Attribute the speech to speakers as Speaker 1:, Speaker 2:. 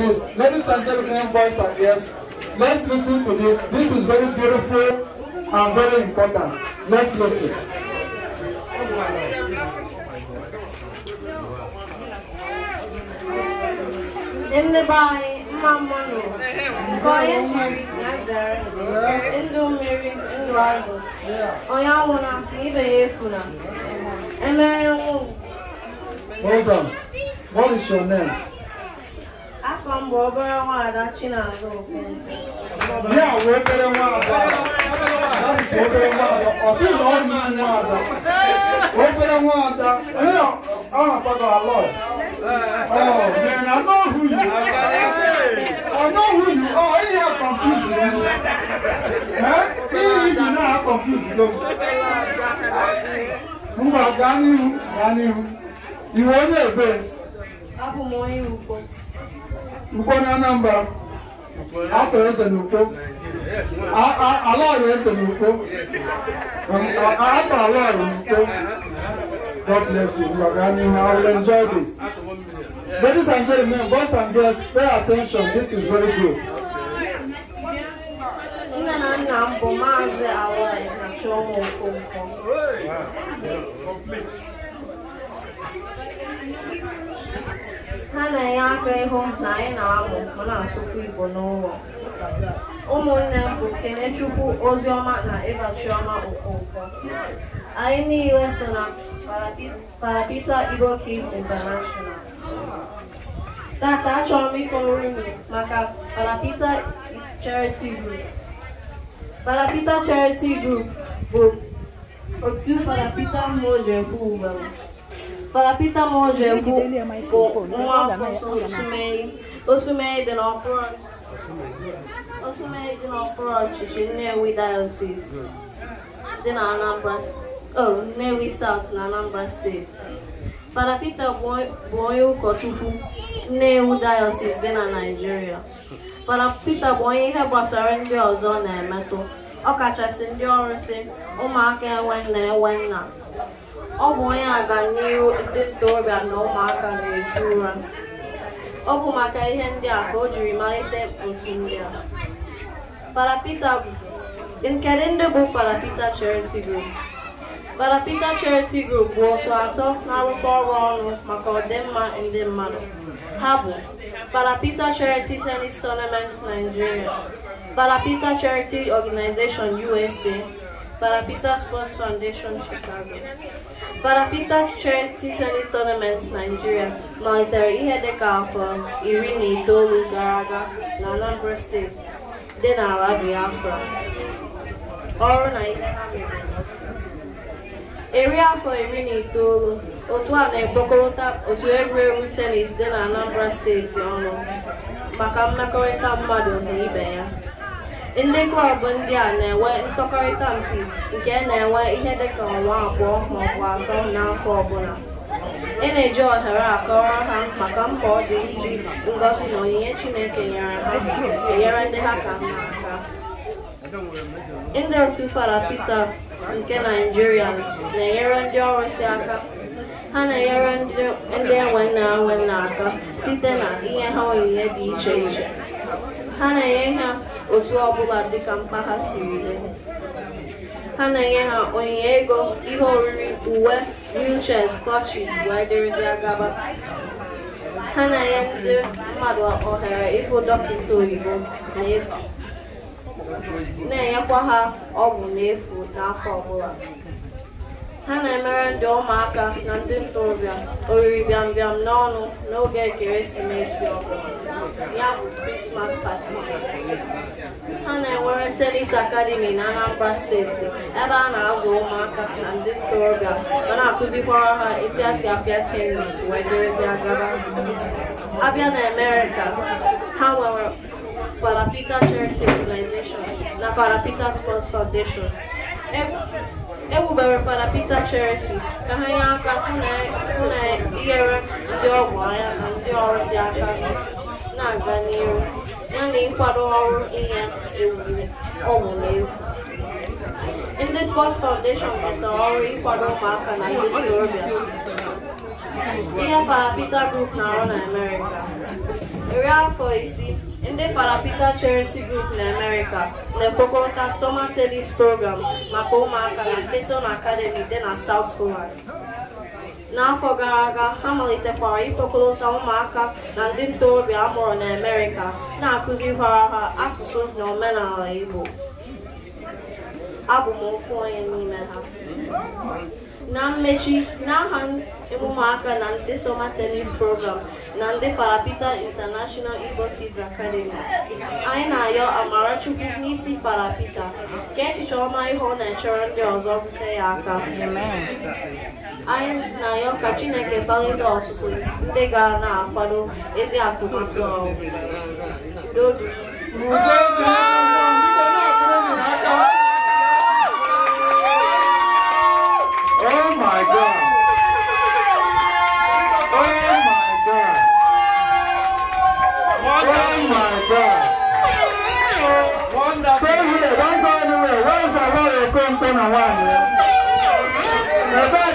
Speaker 1: this. Ladies and gentlemen, boys and girls, let's listen to this. This is very beautiful and very important. Let's listen. In the mmanụ nke onye chịrị ya zere ndụ mmiri ndụ azụ onye anwụna na ibe ya efuna emere nwa Hold on. What is your name? mgbe obere nwaada Chinazụ Okonkwo ya wee obere nwaada obere nwaada ọ sị na ọ nnukwu nwaada obere nwaada onye ahapụgo alọ mana n'ohu yi ọnọhu yi ọ ihe a kọnfuzi ihe iyi na-a kọnfuzi gị mba gaa n'ihu gaa n'ihu iwe onye ebe abụ m onye ugbo ukpo na anambra atọrọ eze na ukpo alọọrụ eze na ukpo um, atọ alọọrụ na God bless you. You are running. I will enjoy this. Ladies and gentlemen, boys and girls, pay attention. This is very good. Nne na nna m bụ Maazị Alai na Chioma Okonkwo. yaaka ihe na anyị na-amụ ma na-asụkwa Igbo n'ụlọ ụmụnne m bụ Kenechukwu Oziọma na Eva Chioma Okonkwo anyị niile so na Parapita Igbo Kids International tata achọrọ m ịkọrọ unu maka Parapita Charity Group Parapita Charity Group bụ otu Parapita mmụọ ji ekwu ugboro paracetamol dị bụ nwa afọ Osumei Osumei dị n'okpuru ọchịchị Nnewi Diocese dị na Anambra Nnewi oh, South na Anambra steeti Fada Pita bụ onye ụkọchukwu nnewu Diocese dị na Naịjirịa Fada Pita bụ onye ihe gbasara ndị ọzọ na-emetụ ọkachasị ndị ọrụ si ụmụaka enwe nna e, enwe nna Ọ bụ onye aganihu ndị ntorobịa na ụmụaka na eju ụra. Ọ bụ maka ihe ndị a ka o jiri malite otu ndị a. Fada Peter bụ Kedu ndị bụ Fada Peter Group? Fada Peter Group bụ otu atọ na-arụkọ ọrụ ọnụ maka ọdịmma ndị mmadụ. Ha bụ Fada Peter Tenis Tennis Tournament Nigeria, Fada Peter Charity Organization USA Parapita Sports Foundation, Chicago. Parapita Chair tennis Tournament, Nigeria. Monitor Ihedeka from Irini Tolu Garaga, Nalambra State, dị n'ala Biafra. Ọrụ na ihe ha mere. Eri afọ iri na itoolu, otu a na-ekpokọta otu egwuregwu tenis Then na Anambra steeti ọnụ maka mmekọrịta mmadụ na Ndị klọb ndị a na-enwe nsọkọrịta mpi nke na-enwe ihe dịka ọnwa abụọ maọbụ atọ n'afọ ọbụla. Ị e na-eji ohere akọrọ ha maka mkpa dị iji ngọzi na onyinye Chineke nyere ha enyere ndị ha ka mma aka. Ndị otu Fada Pita nke naijiria na-enyere ndị ọrụsi aka ha na-enyere ndị enwe nna enwe nna aka site na inye ha onyinye dị iche iche ha na-enye ha otu ọbụla dịka mkpa ha siri dị ha na-enye ha onyinye ego ihe oriri uwe wheelchairs clutches agaba ha na-enye ndị mmadụ ohere ịhụ dọkịta oyibo n'efu na-enyekwa ha ọgwụ n'efu n'afọ ọbụla ha na-emere ndị ụmụaka na ndị ntorobịa oriri bịambịam n'ọnụ n'oge ekeresimesi ọbụla ya bụ krismas pati ha na-enwere tenis akademi na anambra steeti ebe a na-azụ ụmụaka na ndị ntorobịa ma na-akụzikwara ha etu esi apịa tenis wee dịrịzịa gaba abịa na amerịka ha nwere Fada Peter Charity Organization na Fada Peter Sports Foundation e wubere Fada Peter Cherity ka ha nye aka hụ na inyere e, e ndị ọgwụ anya na ndị ọrụsi aka na-aga n'ihu yana ịkwado ọrụ inye ewuli ọgwụ n'efu ndị Sports Foundation batara ọrụ ịkwado ụmụaka na ndị ntorobịa ihe Fada Peter Group na-arụ na Amerịka iri afọ isii Ndị Paraprika Charity Group na America na-ekpokọta Summer Tennis Program maka ụmụaka na Seton Academy dị na South Poland. N'afọ gara aga, ha malitekwara ịkpọkọta ụmụaka na ndị ntorobịa amụrụ na amerika na-akụzikwara ha asụsụ na omenala Igbo. Abụ m ofu onye n'ime ha. Na mmechi, n'aha emume aka na nde soma tenis Program na ndị Farapita International Igbo Kids Academy, anyị na-ayọ Amarachukwu n'isi Farapita ka echiche ọma ihe na-echere ndị ọzọ rute ya aka. Anyị na-ayọ ka Chineke gbalite ọtụtụ ndị ga na-akwado ezi atụmatụ ọhụrụ. máa wà nìyẹn.